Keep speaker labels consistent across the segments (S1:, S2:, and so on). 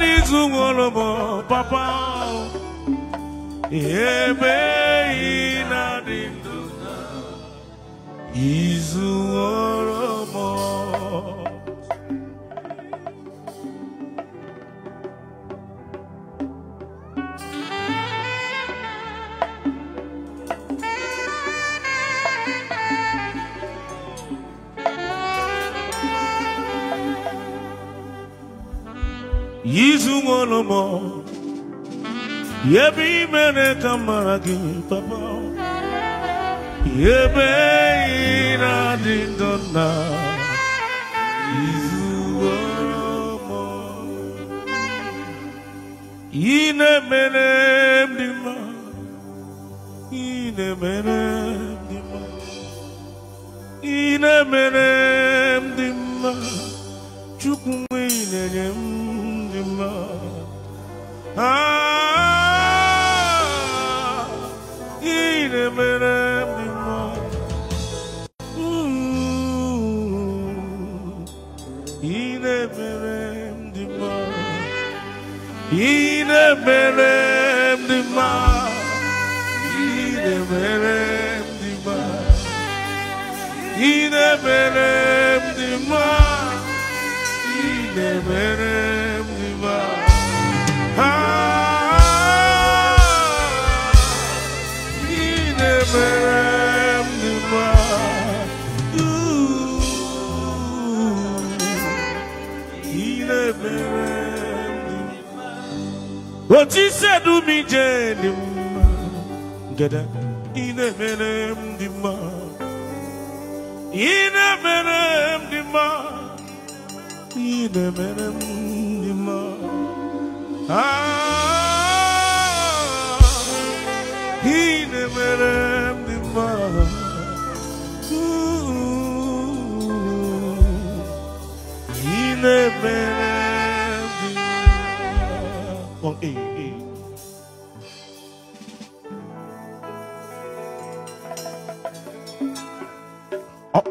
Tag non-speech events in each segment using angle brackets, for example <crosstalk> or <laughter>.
S1: n'izu papa ebe ị na-adị izu nwere mo, yebi mene mere ka mara gị papa ebe ị na-adị ndụ na
S2: izu nwere
S1: mi ine mene m ine mene ị na-emere m dị mma m Ah, in a minute, ooh, in a minute, in a minute, verem dima Yine verem dima Yine verem i mi jẹ ni mma gẹdẹ ina mere m the mma In the m dị mma ina mere m dị ma. ah ina mere m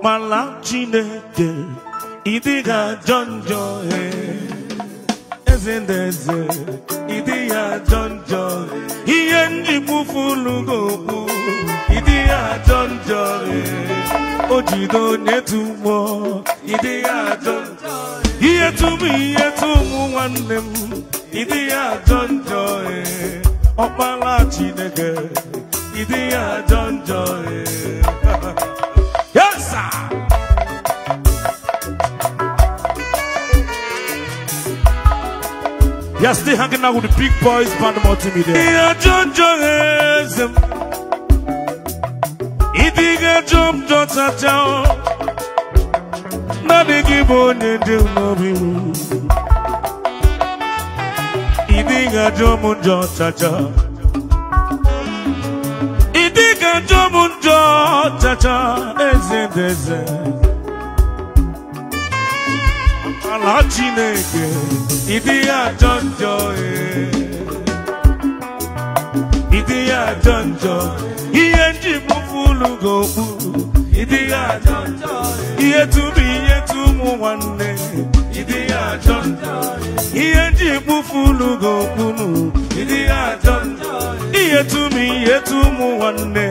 S1: mara chineke ịdịga ajọ njọ eh. eze na eze ịdị ya ajọ njọ eh. ihe njimụfulugookwu ịdị ya ajọ njọ eh. o jide onye tụmụọ ịdị ya ajọ njọ ihe tụmụ ihe tụmụ nwanne m ịdị ya ajọ njọ ọkpara chineke ịdị ya ajọ njọ You're still hanging out with the big boys, band multimedia. Yeah, jump don't touch out. Not a jump don't touch out. jump don't touch out. chineke ịdị ya ajọ njọ eh. ịdị ya ajọ njọ ihe nji mụfụ ulu gị okpuru ịdị ya ajọ njọ eh. ihe tụrụ ihe tụ ụmụ nwanne ịdị ya ajọ njọ eh. ihe nji mụfụ ulu gị okpuru ịdị ya ajọ njọ ihe tụrụ ihe tụ ụmụ nwanne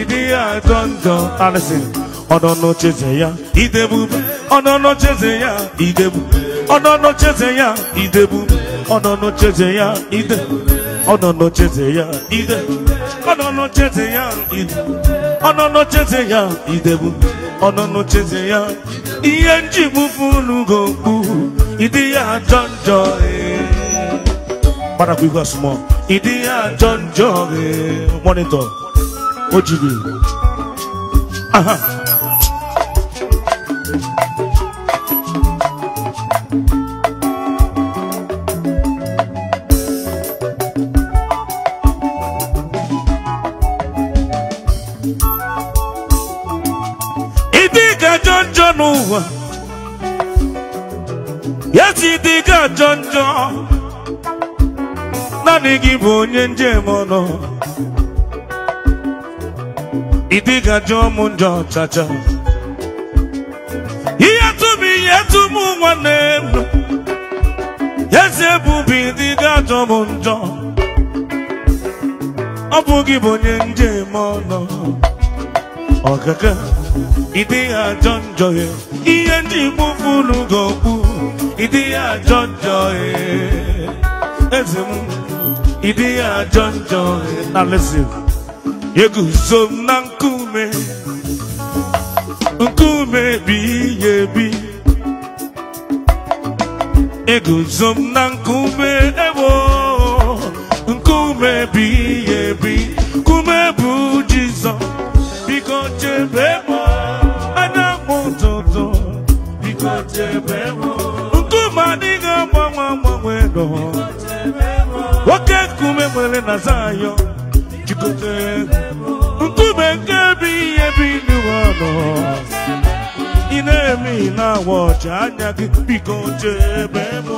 S1: ịdị ya ajọ njọ alison Ono noche zeya idebube Ono noche zeya idebube Ono noche zeya idebube Ono noche zeya idebube Ono noche zeya idebube Ono noche zeya idebube Ono noche zeya idebube Ono noche zeya Iye njibu nugo gombu Idi ya jonjo Bana kuigwa sumo Idi ya jonjo e. e. Monitor Ojibi Aha njọ n'ụwa ya si dịga ajọ njọ naanị gị bụ onye njem nọ. ịdịga njọ m njọ chacha ihe tụm ihe tụm nwanne m eze dịga njọ ọ bụ bụ onye njem ọ ịdị ajọ njọ ya ihe ndị igbo funu ga-okwu ịdị ajọ njọ ya eze m ịdị ajọ njọ ya na lesin eguzo na nkume nkume bi ya ebi eguzo m na nkume ebo nkume nwere na Zayọn jikọtara nkume nke ebi ihe bi n'ụwa nọ ị na-eme na-awa anya gị biko chebe mụ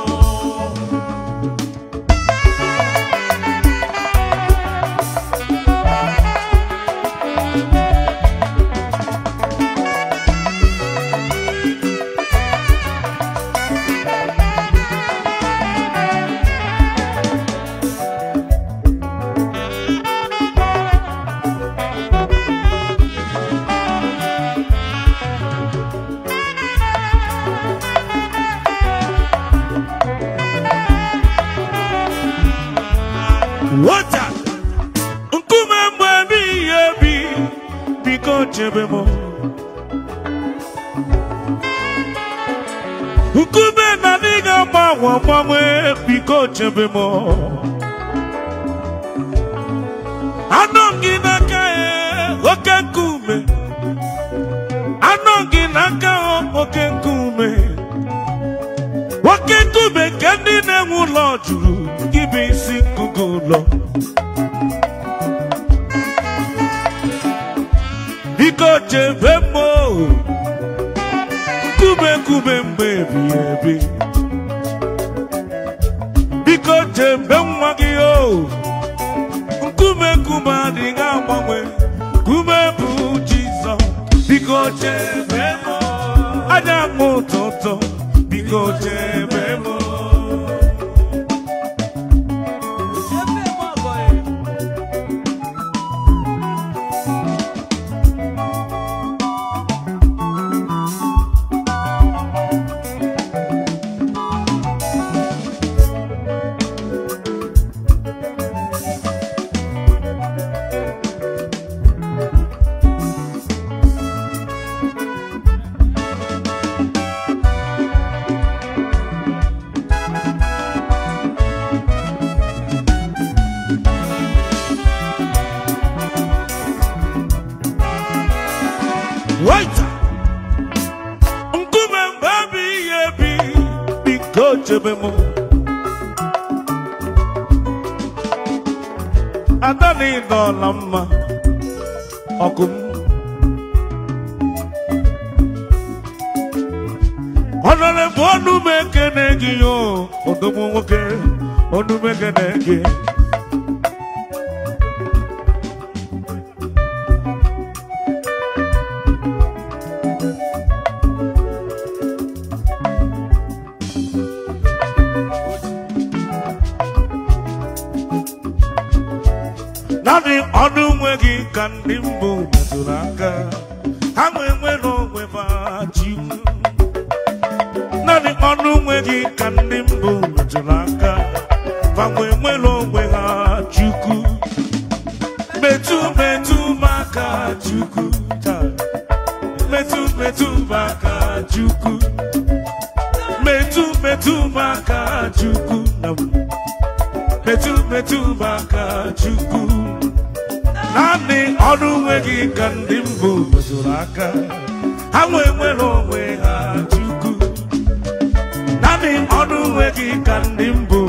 S1: obi anọ gị n'aka ya oke nkume anọ gị n'aka oke nkume oke nkume nke ndị na-enwe ụlọ jụrụ gị bụ isi ngụgụ ụlọ biko chebe mma nkume nkume mgbe ebighị ebi jembe nwa gị o nkume nkume adịghị agbanwe nkume bụ jizọ biko chebe m anya m ụtụtụ biko chebe m n'obe m mma ọgụ m ọnọrọ bụ ọnụ m ekene gị yo odomo nwoke ọnụ m ma nwe nwere onwe ha chukwu metu metụ maka chukwu taa metụ metụ maka chukwu metu metụ maka chukwu na metu metụ maka chukwu naanị ọrụ nwe gị ka ndị mbụ zụrụ aka ha nwee nwere onwe ha chukwu naanị ọrụ nwe gị ka ndị mbụ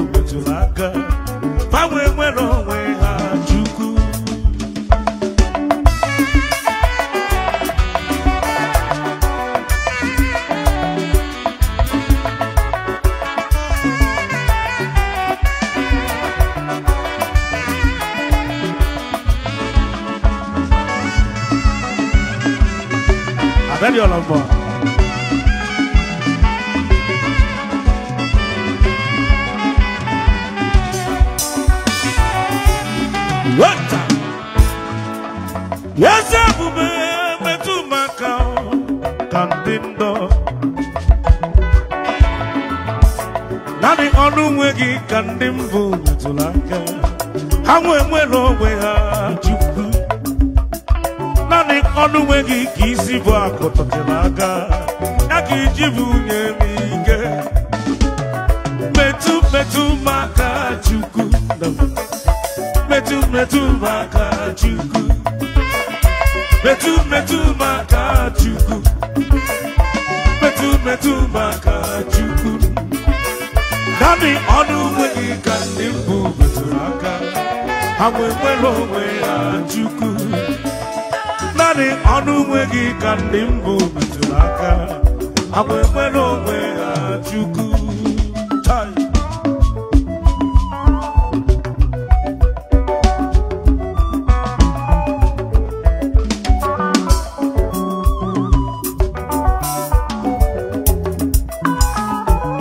S1: lomba. Wata. Yasa bube metuma kau kandindo. Nani ọnụ nwe gị ka ndị mbụ metụrụ aka ha nwee nwere onwe ha ji naanị ọnụ nwe gị ka isi bụ akụ tọtụrụ aka ya ka iji bụ nye m ike metụ metụ m aka chukwu metụ metụ m aka chukwu metụ metụ m aka chukwu metụ metụ m chukwu naanị ọnụ nwe gị ka ndị mbụ metụrụ aka ha nwee nwere onwe ha chukwu naanị ọnụ nwe gị ka ndị mbụ metụrụ aka agba ekwe n'onwe ha chukwu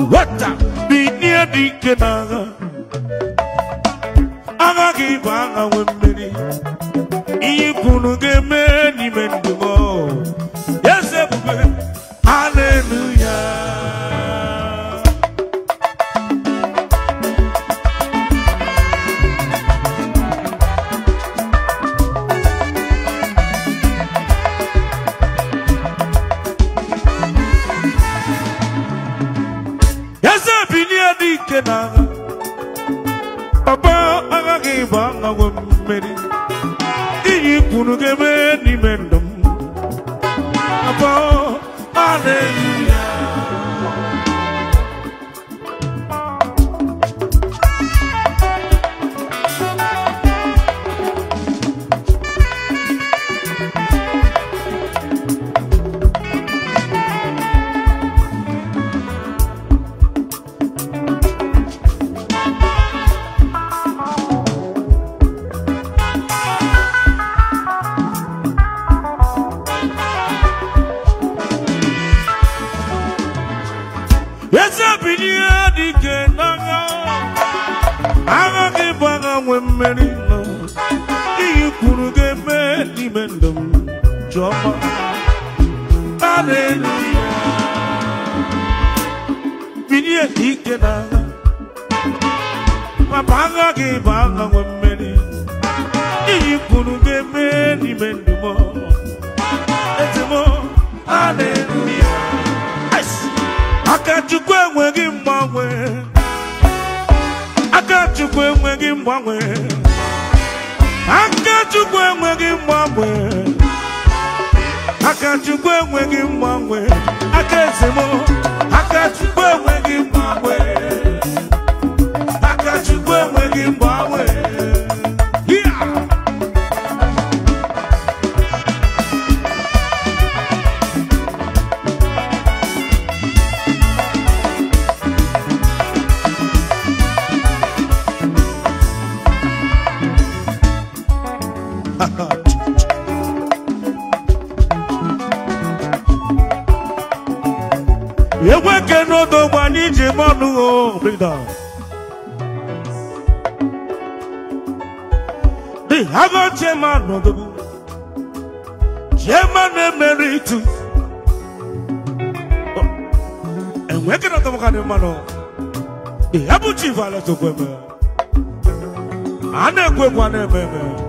S1: nwata binie dị ike n'agha agha gị bụ agha nwe unu ga-eme n'ime ndụ m உனகவே நீ வேண்டும் அப்போ ஆனே I bụ aha nwe mmeri iyi kwuru ga-eme n'ime ndumo ezimo aleluya aka chukwu <laughs> Eweke no do one in Jimonu, bring down. the Hago Chairman of the Chairman Emeritus. Oh, and we're going to talk about the Abu oh? Chief Alas of Weber. Anna Gwebwana Weber.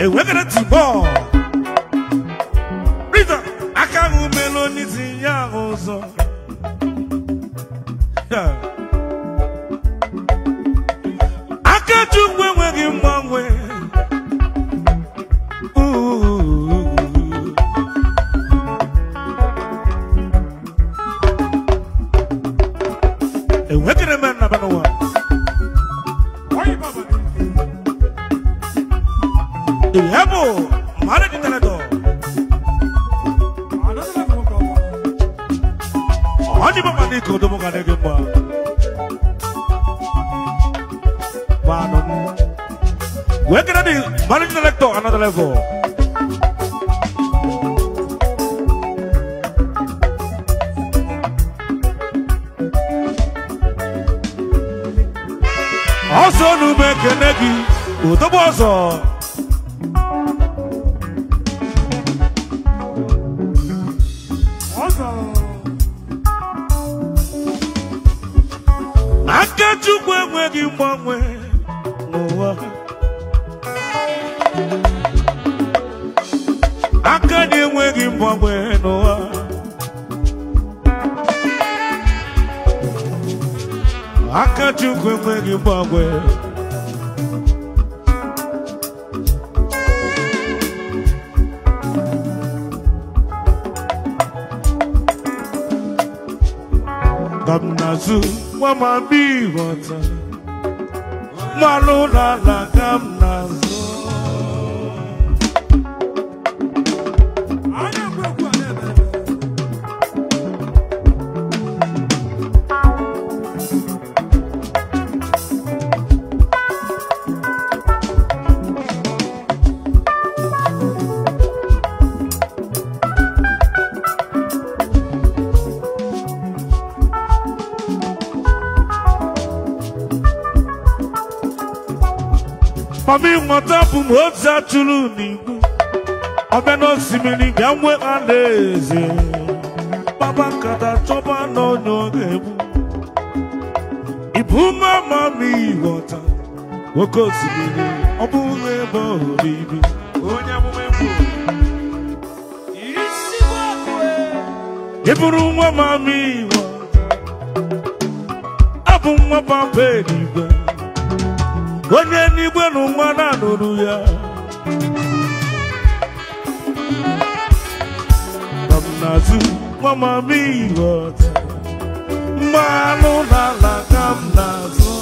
S1: And we're going to ball. Rita, I can't melon is in your ndị ikodobo ga dị gị mma manụ wee kere dị managing director another ọsọ n'ume kene gị odobo ọzọ kwangwe gamnazu mwamambi ghọta mmanụ n'ala gamnazu ọmịnwọta bụ m otu atụrụ n'igbo ọbịa n'osimiri ga nwe alaeze kpaba nkata chọba n'onye ọ ga-egbu nwoke osimiri ọ bụghị onye ị bụrụ nwa mama onye n'igwe na ụmana nụrụ ya nọmnazụ nwamamihe ọta mmanụ n'ala ka m na-azụ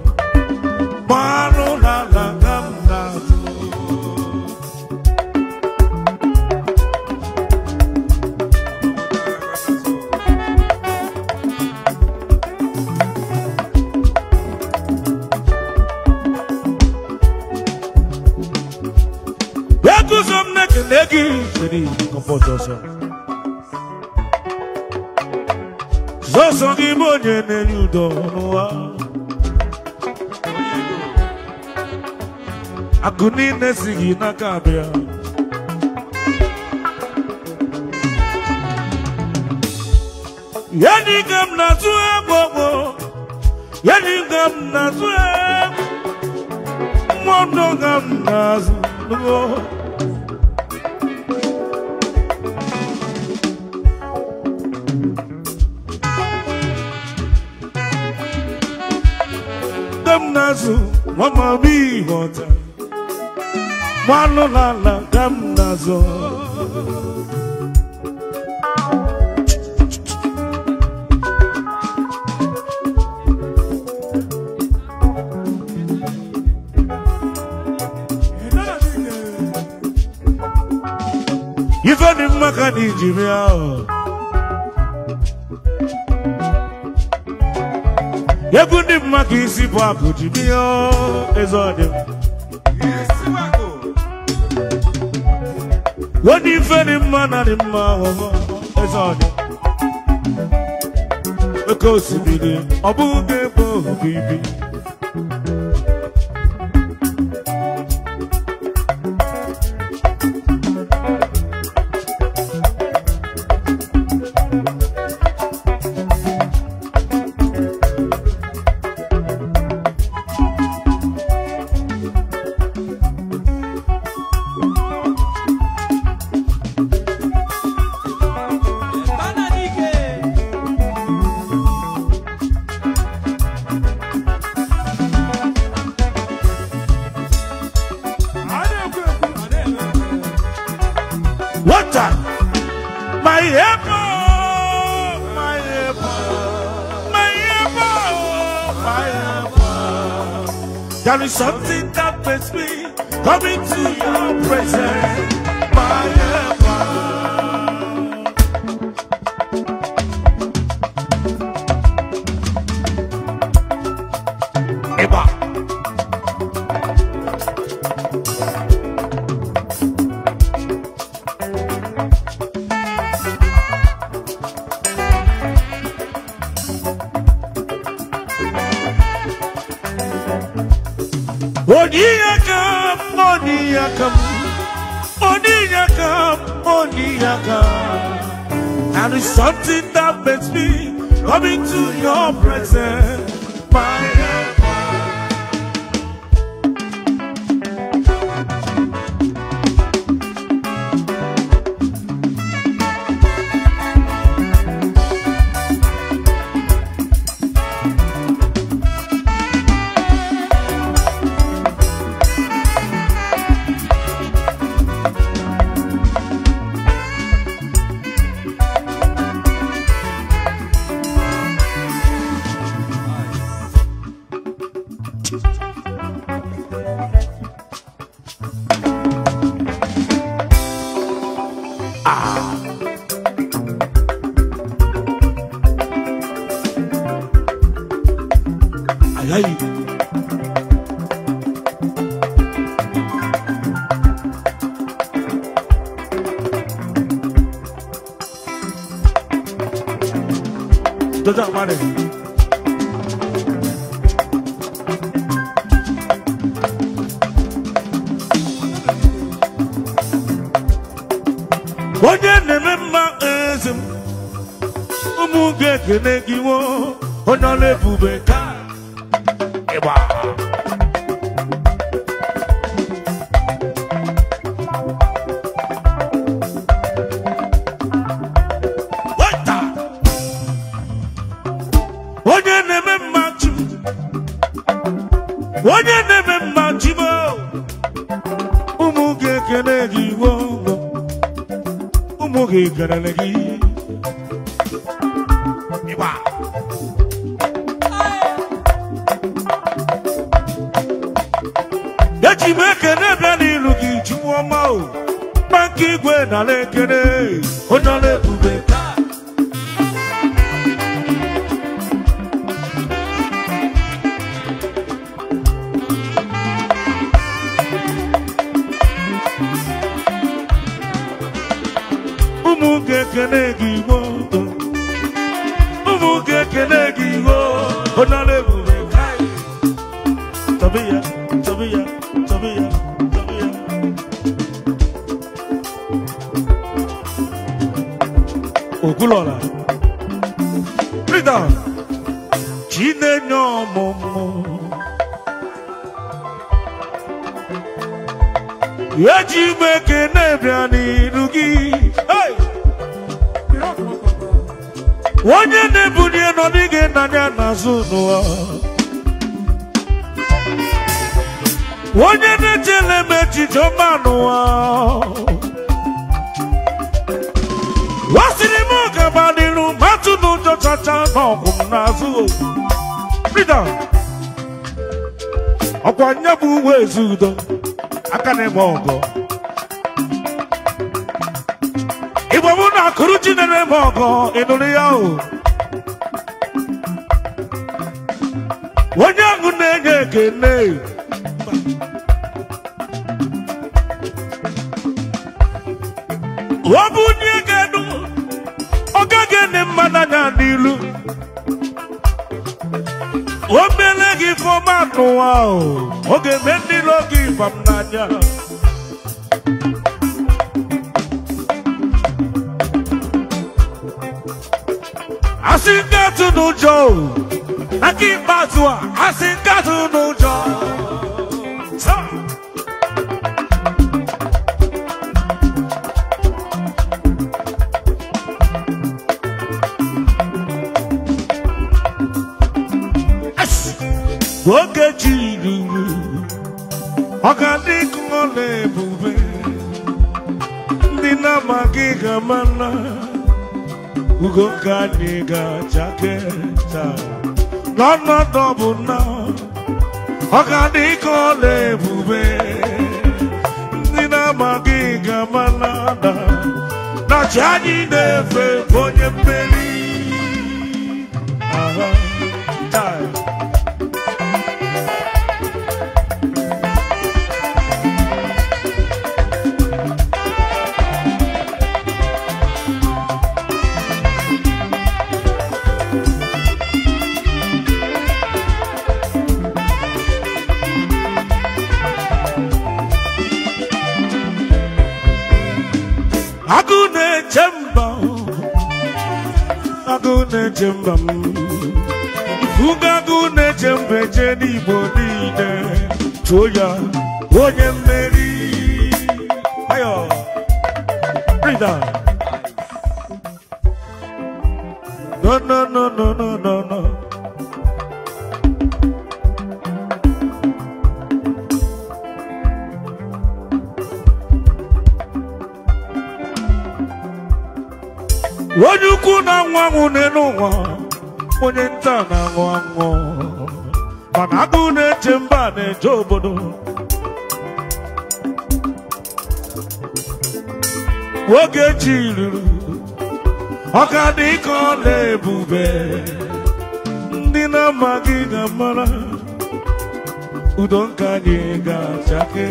S1: Kennedy compose also. Zoso ni bonye ne yudo ne sigi na kabia. gam na zuwa bobo. Yani gam na zuwa. Mwondo gam na gamnazu mama bi hota wano la la gamnazo Ifeanyi mmaka na Ijimia. Oh. egwu ndị bụ maka isi bụ akụ ji bịa eze ọdị onye ife dị mma na dị mma oke osimiri ọ bụghị ga-ebe miracle. And it's something that makes me come into your presence. My onye na-eme mma jibo ụmụ ga-ekele gị iwe ụmụ ga-ekelele gị eji m ekele bịa n'ilu gị jiwu ọma o maka igwe nala ekele Okwuluọra Rita chi ọmụmụ eji m e na bịa n'iru gị onye na-ebuli nọdụ gị n'anya n'azụ n'ụwa onye na-echele m echiche ọma n'ụwa kacha n'ọgụ m n'azụ Rita ọkwa nye bụ uwe ezu udo aka na-eme ọgọ igbo mụ na akụrụ chi na-eme ịnụrụ ya o onye ahụ na-enye ekene ọ bụ n'ilu obele gị ifeọma n'ụwa ọ ga-eme ndị ilo gị ifam n'anya asị nkatụ n'ụjọ aka ikpeazụ a asị nkatụ n'ụjọ ọ ga-adị ọla ebube ndị na-amaghị ga-ama na ugo ga-achake n'ọnọdụ bụ na ọ ga-adị ọla ebube ndị na-amaghị ga-ama na ada na chi anyị na onye mmeri agụ na-eche mba agụ na-eche mba m na-eche mba eche n'igbo niile chụọ ya onye mmeri no no no no no no no anwụ n'elu onye nta na-aṅụ aṅụ mana agụ na-eche mba na-eje obodo nwoke chi ruru ọka dị ka ọ na-ebube ndị na-amaghị ga ụdọ udo nka anyị ga-achake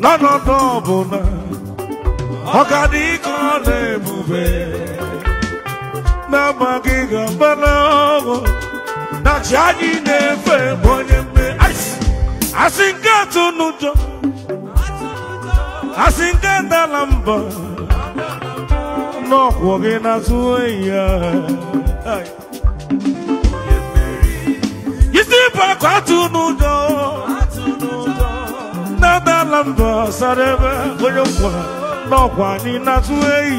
S1: n'ọnọdụ ọbụla ọka dị ka ọ na-ebube n'amaghị gaba n'ọgụ na chi anyị na-efe bụ onye mme asị nke atụ n'ụjọ asị nke ndala mba n'ọkwụ gị na-azụ oyi ya isi bụ akụ atụ n'ụjọ na-adala mba sara ebe onye nkwa n'ọkwa anyị na-azụ eyi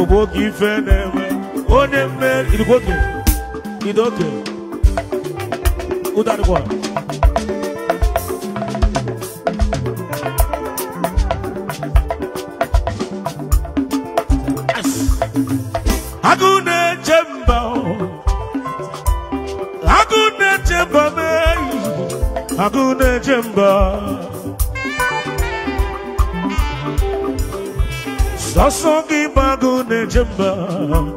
S1: obodo ife na-eme Only man, it's okay. It's okay. Who that one? Agune chemba Agune chemba me Agune chemba Sasogi bagune chemba